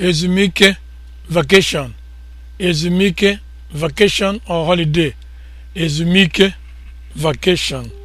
ezumike vacation ezumike vacation or holiday ezumike vacation